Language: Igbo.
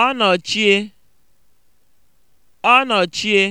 Ọ ọnọchie ọnọchie